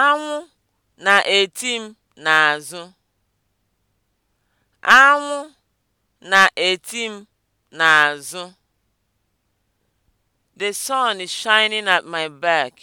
Anwụ na-eti m n'azụ. Anwụ na-eti m n'azụ. The sun is shining at my back.